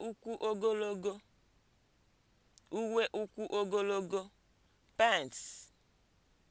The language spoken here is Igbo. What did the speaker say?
Uwe ukwu ogologo (pants)